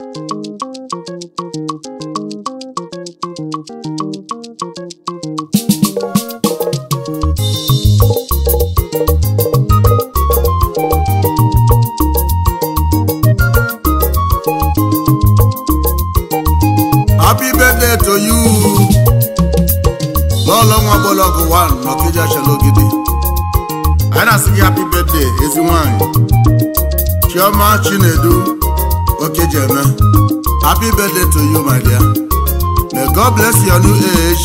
Thank you. happy birthday to you, my dear. May God bless your new age.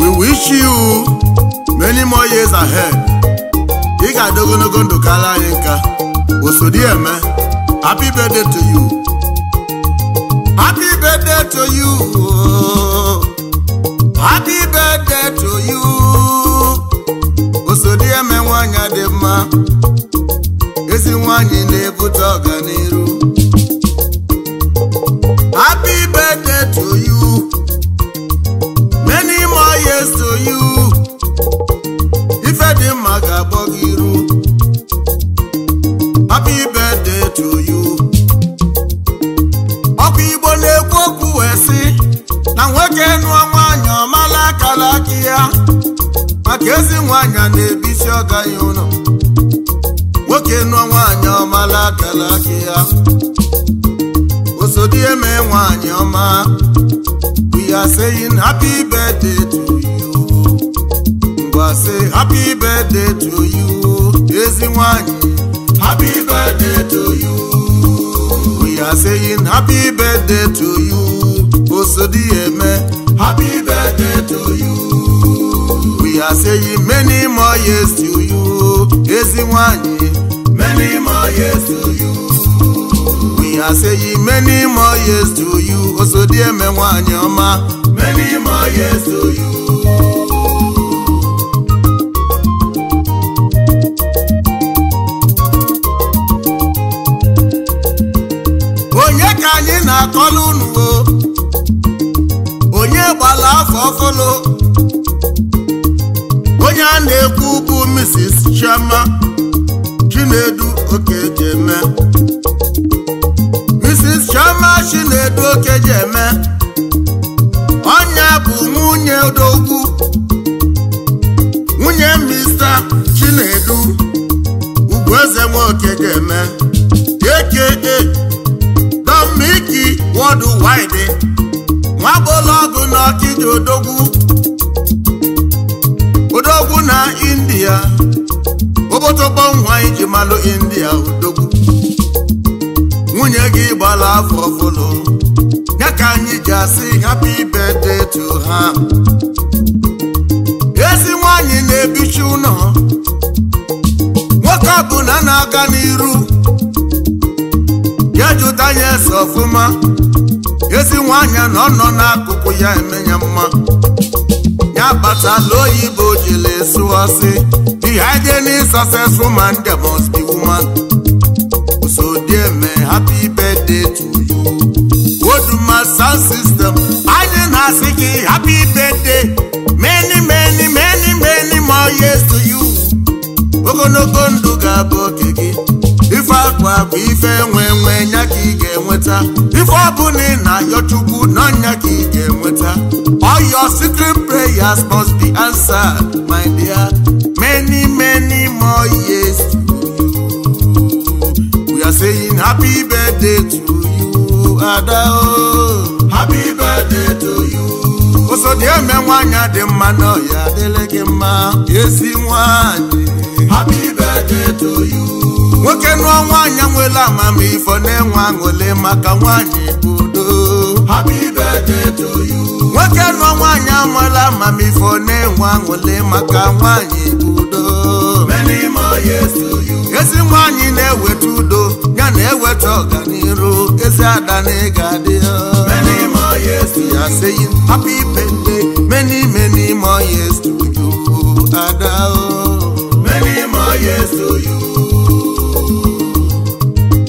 We wish you many more years ahead. Ị ga-adị ogologo ndụ anyị Osodi eme, happy birthday to you. Happy birthday to you. Happy birthday to you. Osodi eme nwanyị dị mma. Ezi nwanyị na-ebute ọganihu. They are saying happy birthday to you. We are say happy birthday to you. Easy Happy birthday to you. We are saying happy birthday to you. Osodieme. Happy birthday to you. We are saying many more years to you. Easy Many more years to you. I say many more years to you so dear me nwanyị ọma many more years to you onye ka anyị na-akọlụ unuwo onye gbala afọ ọfụlụ onye a na-ekwu bụ Mrs. Chioma Chinedu Okejeme na Chinedu oke ji eme ọnya bụ nwunye odogwu nwunye mista Chinedu Ugwueze Nwoke ji eme aka Dominic Worldwide nwagbọlọgụ na ọkịja odogwu odogwu na India obodo nwa iji malụ India odogwu nwunye gị gbara afọ ọfụlụ ya ka anyị ji asị happy birthday to ha ezi nwanyị na-ebichi ụlọ nwoke bụ na-aga n'iru ya jụta ya ese ọfụma ezi nwanyị na ọ nọ n'akụkụ ya eme ya mma ya kpatala oyibo jiri sụọsị behind any successful man there must be woman dear Odieme happy birthday to you my sound system anyị na-asị gị happy birthday many many many many more years to you ogologo ndụ ga-abụ oke gị ife akwa bụ ife nwe nwe nya ka ị ga-enweta ife ọbụla ị na-ayọ chukwu nọ nya ka ị ga-enweta all your secret prayers must be answered my dear many many more years saying happy birthday to you Ada o. Oh. Happy birthday to you. di eme nwanyị adị mma n'ọhịa adịla gị mma ezi nwanyị. Happy birthday to you. Nwoke nụọ nwaanyị nwere amamifọ na-enwe aṅụle maka nwaanyị udo. Happy birthday to you. Nwoke nụọ nwaanyị amụla amamifọ na-enwe aṅụle maka nwaanyị udo. Many more years to you. Ezi nwaanyị na-eweta na-eweta ọganiru ezi ada na ịga adị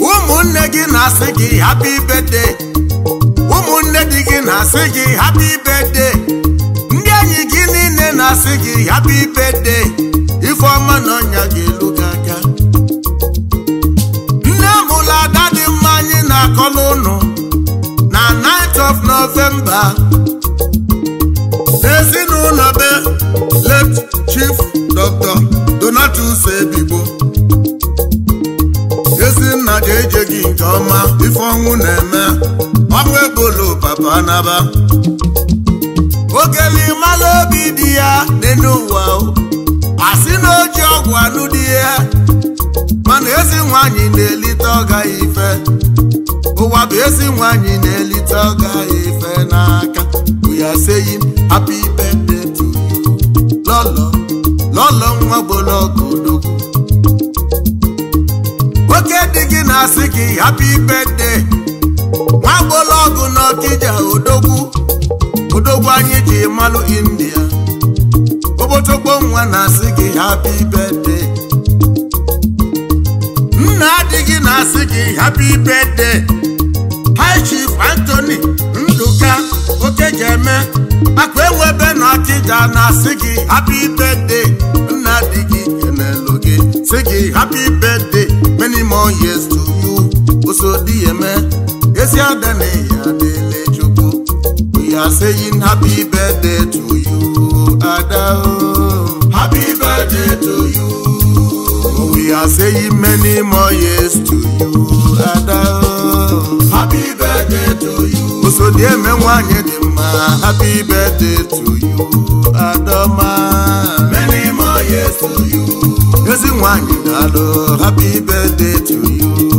ụmụnne gị na-asị gị happy birthday ụmụnne di gị na-asị gị happy birthday ndị enyi gị niile na-asị gị ibe de. ifeọma na ọnya gị elu nzukọ n'ụlọ na 9th of November n'ụlọ be late chief Dr. Donatus Ebigbo ezinna ga-eje gị nke ọma ife ọnwụ na-eme ọnwụ ebolo papa anaba ogeli mala obi dị ya dị n'ụwa asị na oji ọgwụ anụ dị ya mana ezi nwaanyị na-elite ọ gaghị ife ụwa bụ ezi nwanyị na-elite ọga ife n'aka uya seyi happy birthday to you lọlọ lọlọ nwa gbologo odogwu nwoke dị gị na-asị gị happy birthday nwa gbologo n'ọkija odogwu odogwu anyị ji malụ india obotogbo nwa na-asị gị happy birthday nna adịghị na-asị gị happy birthday Chief Anthony Nduka Okejeme akpa ewebe na Akija na-asị gị happy birthday nna di gị enelu gị sị gị happy birthday many more years to you osodi eme ezi ada na ya dele chukwu we are saying happy birthday to you ada happy birthday to you We are saying many more years to you, Ada. Happy osodi eme nwanyị dị mma happy birthday to you adọma many more years to you ezi nwanyị daalụ happy birthday to you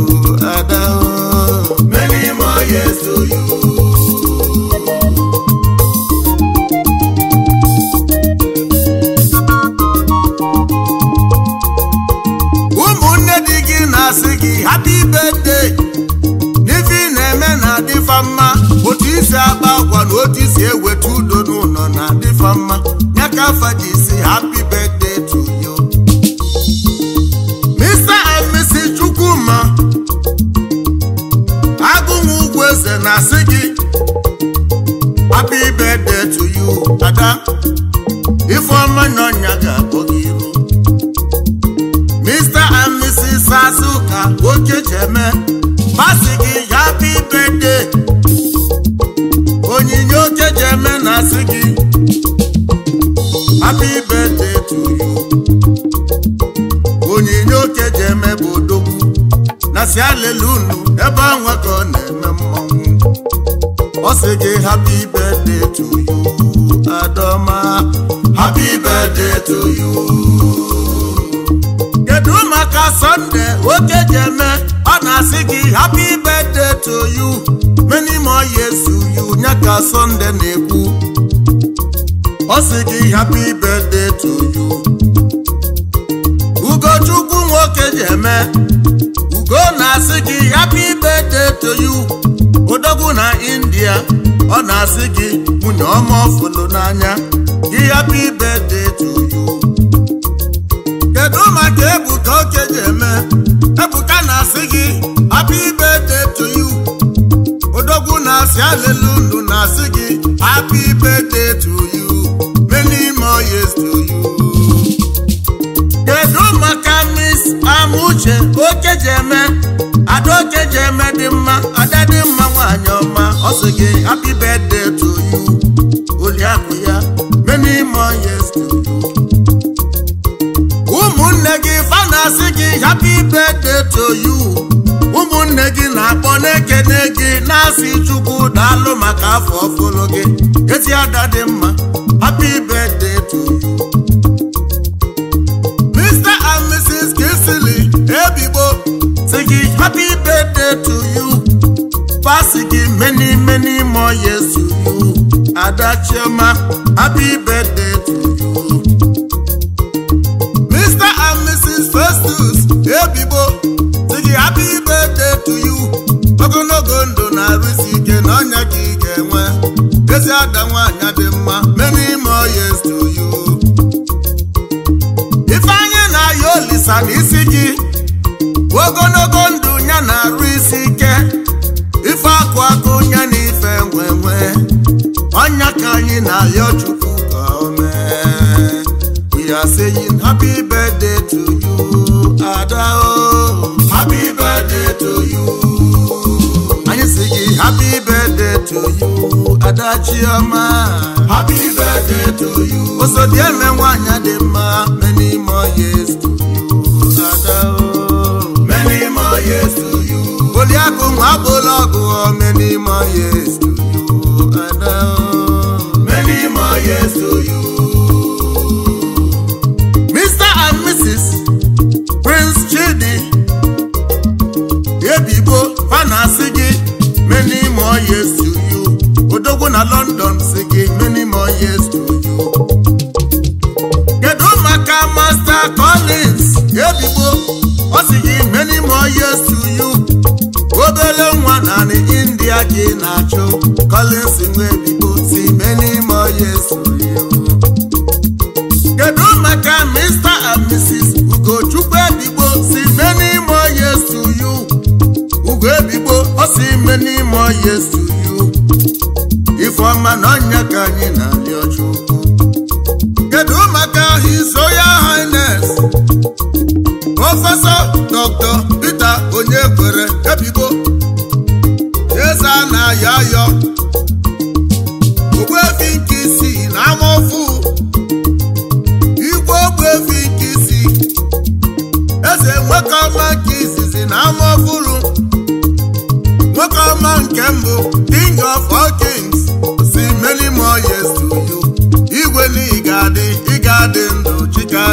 eze na-asị gị happy birthday to you ada ifeọma n'ọnya ga-akpọ gị iru Mr and Mrs Azuka oke jeme masị gị happy birthday onyinye oke jeme na-asị gị happy birthday to you onyinye oke jeme bụ odogwu na si alelu unu sị gị happy birthday to you Adoma happy birthday to you kedu maka Sunday oke ji eme ọ na-asị gị happy birthday to you many more years to you ya ka Sunday na-ekwu ọ sị gị happy birthday to you Ugochukwu nwoke ji eme Ugo na-asị gị happy birthday to you Odogwu di ya ọ na-asị gị nwunye ọma ọfụlụ n'anya gị happy birthday to you kedu maka Ebuka oke ji eme Ebuka na-asị gị happy birthday to you odogwu na-asị na-asị gị ibe kedu maka Amuche okeji eme ada okeji eme dị mma ada dị mma nwaanyị ọma ọ sị gị happy birthday to you oliakụ ya many more years to you ụmụnne gị fa na-asị gị happy birthday to you ụmụnne gị na-akpọ na-ekene gị na-asị chukwu daalụ maka afọ ọfụrụ gị ezi ada dị mma happy birthday to you Mr and Mrs. Kisili ebigbo sị gị happy birthday e Yesu yezuu ada chioma gị your chukwu ka o we are saying happy birthday to you ada o happy birthday to you and you say happy birthday to you ada chioma happy birthday to you dear, osodieme nwanyị dị mma many more years to you ada o many more years to you oliakụ nwa bụlọgụ many more years to you yes to you.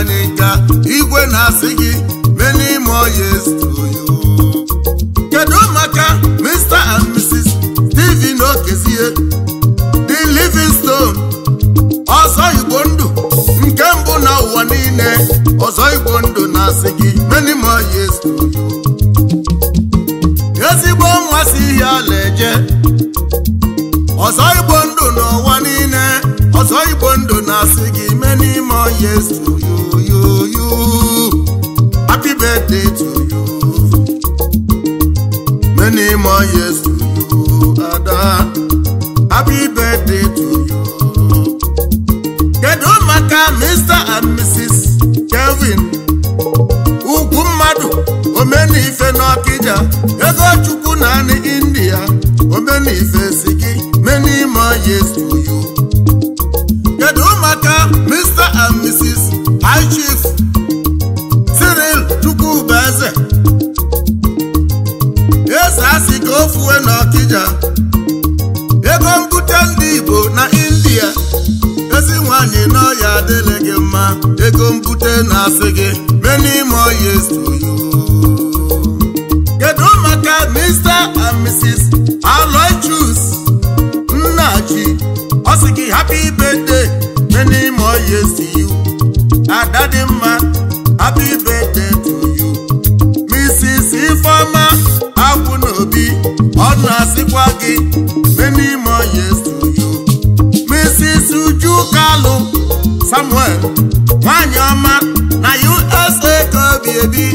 n'ịka igwe na-asị gị many more years kedu maka Mr and Mrs Stephen Okezie the Livingstone ọzọ igbo ndụ nke mbụ na ụwa niile ọzọ igbo ndụ na-asị gị many more years Yes to you, you, you. Happy birthday to you. to kedu maka Mr. and Mrs. Aloysius Nnaji ọ sị gị happy birthday many more years to you ada dị mma happy birthday to you Mrs. Ifeoma Akwunobi ọ na-asịkwa gị many more years to you Mrs. Ujukalu Samuel baby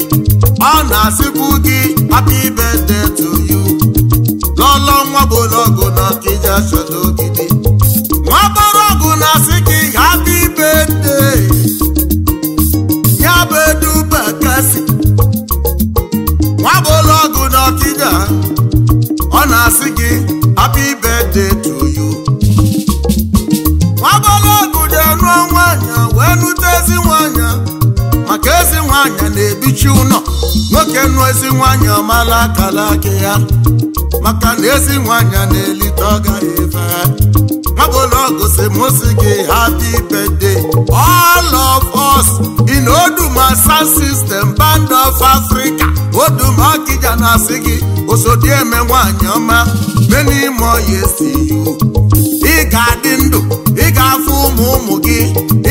ọ na-asịpụ gị happy birthday to you ebichi ụlọ nwoke nụ ezi nwanyị ọmala akala aka ya maka na ezi nwanyị na-elite ọ gaghị efe nwabụlọgụsi mosi gị hapi birthday all of us in Oduma Sound System Band of Africa Oduma Okija na-asị gị osodieme nwanyị ọma many more years to ị ga-adị ndụ ga-afụ ụmụ ụmụ gị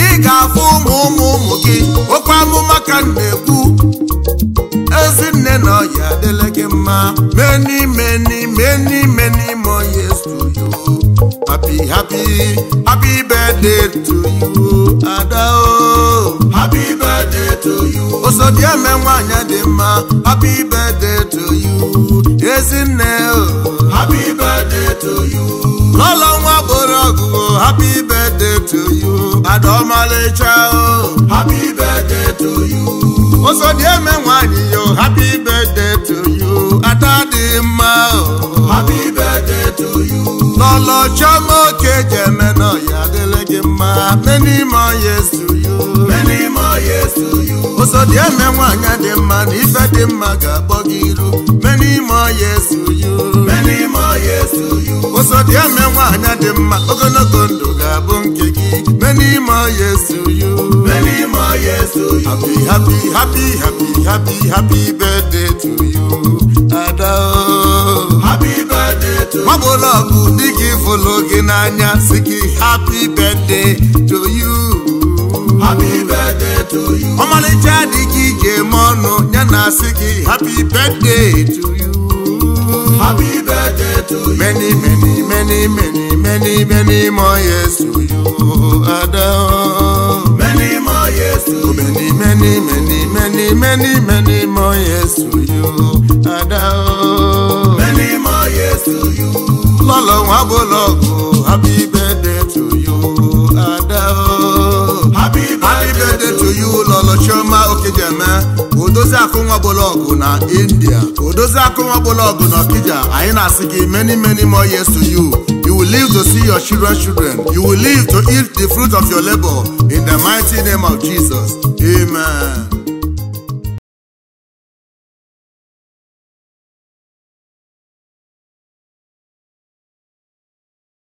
ị ga-afụ ụmụ ụmụ ụmụ gị okwu amụma ka m na-ekwu ezinne na ọya adịla gị mma many many many many more years to you happy happy happy birthday to you ada o oh. happy birthday to you osodieme nwanyị dị mma happy birthday to you ezinne o oh. happy birthday to you lọ́lọ́wọ́ bọ̀rọ̀gùn o happy birthday to you àdọ́mọ́lẹ́ṣà o happy birthday to you. ó sọ díẹ̀ mẹ́wàá nìyó happy birthday to you àtàdìmá o happy birthday to you. lọ́lọ́ sọ́mọ́ kejì ẹ̀mẹ́ náà yàgẹ́lẹ́gẹ́ máa many more years to you dị emenwe anya dị mma na ife dị mma ga-akpọ gị iru meni ime ọya esuyu meni ime ọya esuyu ụzọ dị emenwe anya dị mma ogologo ndụ ga-abụ nke gị meni ọya esuyu meni happy happy happy happy happy happy birthday to you ada o oh. happy birthday to you ọ bụla ọgụ dị gị fụlụ gị n'anya si gị happy birthday to you happy birthday to you. ọmọlẹ́jà di gíje mọ́nà yánà sí kí happy birthday to you. happy birthday to you. many many many many many many more years to you Adam. many more years to you. many many many many many many more years to you Adam. many more years to you. lọ́lọ́run abọ́lọ́gùn happy birthday. oyi ụlọlọ chioma okejeme Odoza akụnwa bologo na india Odoza akụnwa bologo na kija. I na siki many many more years to you you will live to see your children children you will live to eat the fruit of your labor in the mighty name of jesus amen